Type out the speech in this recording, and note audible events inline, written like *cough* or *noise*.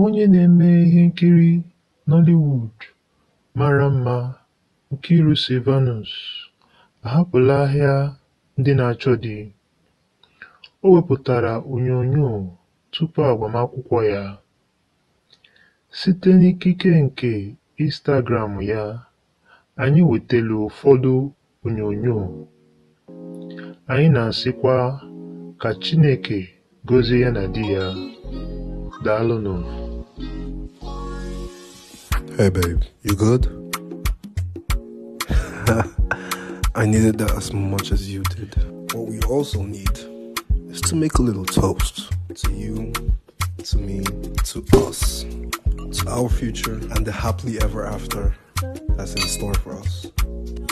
Onye na-eme ihe nkiri Nollywood mara mma Nkiru Sylvanus ahapụla ahịa ndị na-achọ di. O wepụtara onyonyo tupu agbamakwụkwọ ya, site n'ikike nke Instagram ya, anyị wetara ụfọdụ onyonyo, anyị na-asịkwa ka Chineke gozie ya na di ya. Daalụnụ! Hey babe, you good? *laughs* I needed that as much as you did. What we also need is to make a little toast to you, to me, to us, to our future, and the happily ever after that's in store for us.